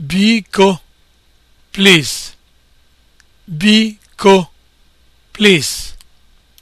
Biko, please. Biko, please.